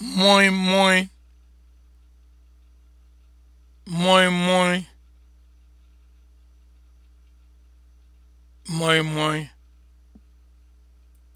moi moi moi moi moi moi